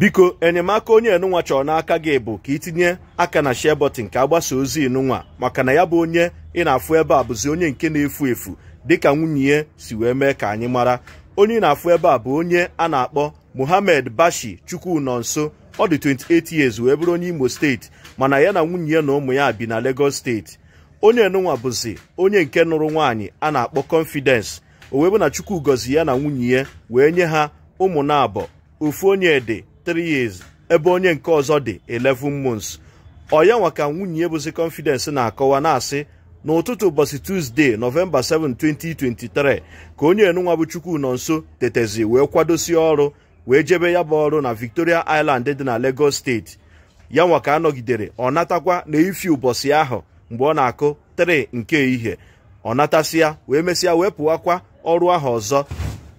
biko enyemaka onye enunwa chọrọ n'aka gị bụ ka itinye aka na share button ka agbasa ozi enunwa maka na ya bụ onye ị na-afụ ebe a bụzi onye nke na-efu efu dịka nwunye ya si wee mee ka anyị mara onye ị na-afụ ebe a bụ onye a na-akpọ muhammed Bashi Chukwunonso ọ dị 28 years wee bụrụ onye Imo steeti mana ya na nwunye ya na ụmụ ya bi na Lagos steeti onye enunwa bụzi onye nke nụrụ nwaanyị a na-akpọ Confidence o wee bụ na Chukwu gọzi ya na nwunye ya wee nye ha ụmụ na abọ ofu onye ede 3 ebe onye nke ọzọ dị 11 months ọya nwa ka nwunye bụzi confidence na-akọwa na-asị n'ụtụtụ ụbọchị tuzdee Novemba 7 2023 ka onye enunwa bụ chukwu nọ nso tetezi wee kwadosi ọrụ wee jebe ya bụ ọrụ na Victoria Island dị na Lagos steeti ya nwa ka anọgidere ọ natakwa na ifi ụbọchị ahụ mgbe ọ na-akụ 3 nke ehihie ọ natasịa wee mesịa wee pụwakwa ọrụ ahụ ọzọ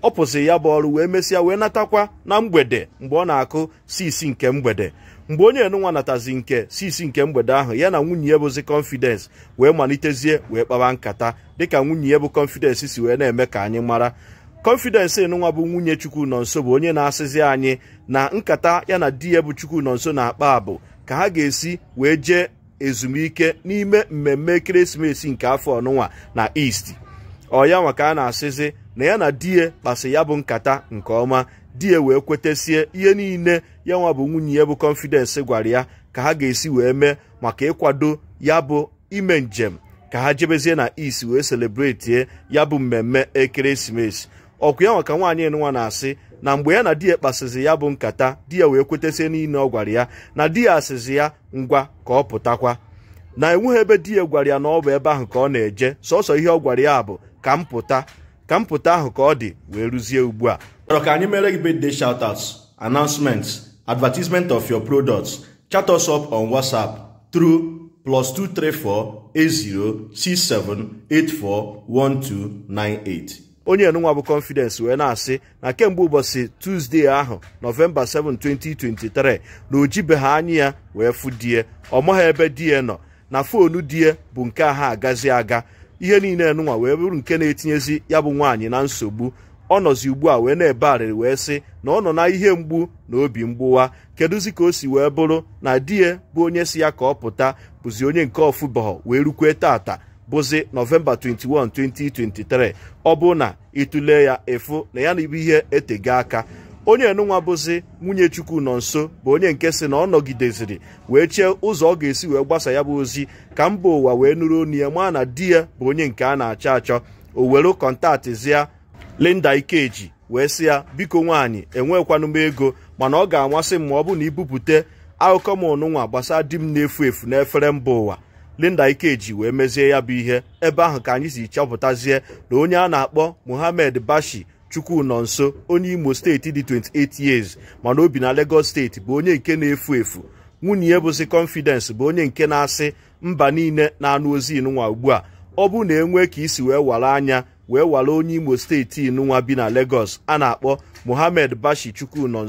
ọ pụsị ya bụ ọrụ wee mesịa wee natakwa na mgbede mgbe ọ na-akụ sisi nke mgbede mgbe onye enunwa natazi nke sisi nke mgbede ahụ ya na nwunye ya bụzi confidence wee malitezie wee kpawa nkata dịka nwunye ya bụ confidence si wee na-eme ka anyị mara confidence enunwa bụ nwunye chukwu nọ nso bụ onye na-asịzi anyị na nkata ya na di ya bụ chukwu nọ nso na-akpa abụ ka ha ga-esi wee jee ezumike n'ime mmemme ekeresimesi nke afọ ọnụnwa na east ọya nwa ka a na-asịzi na ya na di ya kpasị ya bụ nkata nke ọma di ya wee kwetesie ihe niile ya nwa bụ nwunye ya bụ kọnfidensị gwara ya ka ha ga-esi wee mee maka ịkwado ya bụ ime njem ka ha jebezie na is wee selebreti ya bụ mmemme ekeresimesi ọkụ ya nwaka ka nwaanyị nwa na-asị na mgbe ya na di ya kpasịzi ya bụ nkata di ya wee kwetesie niile ọ gwara ya na di ya asịzi ya ngwa ka ọ pụtakwa na enweghị ebe di ya gwara ya na ọ bụ ebe ahụ ka ọ na-eje sọsọ ihe ọ gwara ya bụ ka m pụta ka mpụta ahụ ka ọ dị wee rụzie ugbu a chọrọ ka anyị mere gị shout out announcements advertisement of your products chat us up on whatsapp through plus 2348067841298 onye enunwa bụ confidence wee na-asị na kemgbe ụbọchị tuzdee ahụ nọvemba 7 2023 na ojibeghị anya ya wee fụ die ọ ha ebe die nọ na foonu die bụ nke ha agazi aga ihe niile nụnwa wee bụrụ nke na-etinyezi ya bụ nwaanyị na nsogbu ọ nọzi ugbu a wee na-ebe arịrị wee sị na ọ nọ na ihe mgbu na obi mgbuwa kedụzi ka o si wee bụrụ na di ya bụ onye si ya ka ọ pụta bụzi onye nke ọfụbọghọ wee rukwe tata bụzi nọvemba 21 2023 ọ bụ na ịtụle ya ịfụ na ya na ibu ihe etego aka onye nụnwa bụzi nwunye chukwu nọ nso bụ onye nke si na ọ nọgideziri wee chee ụzọ ọ ga-esi wee gbasa ya bụ ozi ka mba ụwa wee nụrụ onu ya maa na di ya bụ onye nke a na-achọ achọ o were kọntaktịzia Linda Ikeji wee sị ya biko nwaanyị enwekwanụ m ego mana ọ ga-amasị m ma ọ bụ na ibupute akụkọ m ọnụnwa gbasa di m na-efu efu n'efere mba ụwa Linda Ikeji wee mezie ya bụ ihe ebe ahụ ka anyị si chọpụtazie na onye a na-akpọ Muhammad Bashi chukwu nọ nso onye imo steeti dị 28 years mana obi na Lagos steeti bụ onye nke na-efu efu nwunye ya bụzi confidence bụ onye nke na-asị mba niile na-anụ ozi inụnwa ugbu a ọ bụ na enwe ka isi wee wara anya wee wara onye imo steeti inunwa bi na Lagos a na-akpọ Mohammed Bashi chukwu nọ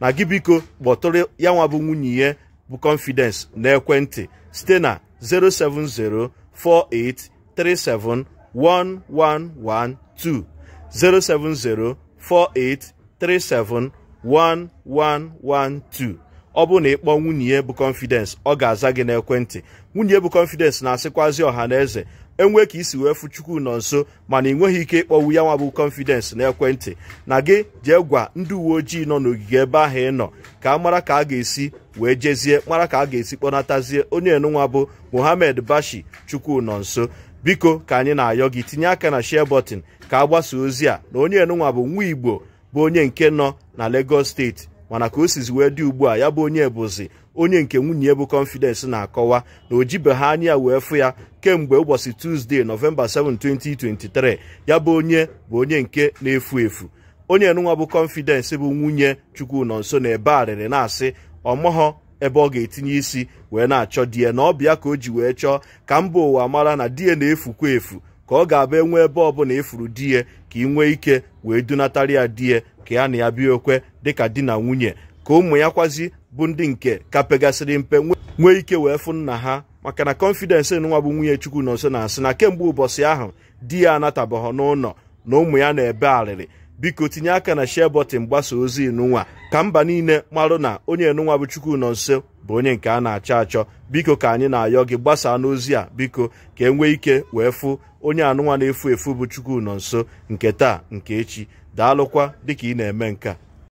na gị biko kpọtụrụ ya nwabụ nwunye ya bụ confidence na ekwentị site na 07048371112 07048371112 ọ bụ na ịkpọ nwunye ya bụ confidence ọ ga-aza gị n'ekwentị nwunye bụ confidence na-asịkwazi ọha na eze enwe ka isi wee fụ chukwu nọ nso mana ị nweghị ike ịkpọwu ya nwa bụ confidence n'ekwentị na gị jee gwa ndị uwe ojii nọ n'ogige ebe ahụ ị nọ ka a mara ka a ga-esi wee jezie mara ka a ga-esi kpọnatazie onye enunwa bụ Mohammed Bashi chukwu nọ nso biko ka anyị na-ayọ gị tinye aka na share button ka a gbasaa ozi a na onye enunwa bụ nwa igbo bụ onye nke nọ na Lagos steeti mana ka o sizi wee dị ugbu a ya bụ onye bụzi onye nke nwunye bụ confidence na-akọwa na o anyị anya wee fụ ya kemgbe ụbọchị tusdee nọvemba 7 2023 ya bụ onye bụ onye nke na-efu efu onye enunwa bụ confidence bụ nwunye Chukwunonso na ebe arịrị na-asị ọmọghọ ebe ọ ga-etinye isi wee na-achọ die na ọbịa ka o ji wee chọọ ka mba ụwa mara na di ya na-efukwa efu ka ọ ga-abụ enwe ebe ọbụla efuru di ya ka ị nwee ike wee dunatara ya die ka ya na ya bịa okwe dịka di na nwunye ka ụmụ ya kwazi bụ ndị nke ka pegasịrị mpe nwee ike wee fụ nna ha maka na kọnfidensị nwa bụ nwunye chukwu nso na-asị na kemgbe ụbọchị ahụ di ya anatabaghọ n'ụlọ na ụmụ ya na-ebe arịrị biko tinye aka na share gbasa ozi inụnwa ka mba niile marụ na onye nụnwa bụ chukwu nọ nso bụ onye nke a na-achọ achọ biko ka anyị na-ayọ gị gbasaa n'ozi a biko ka e nwee ike wee fụ onye anụnwa na-efu efu bụ chukwu nọ nso nke taa nke echi daalụkwa dịka ị na-eme nke a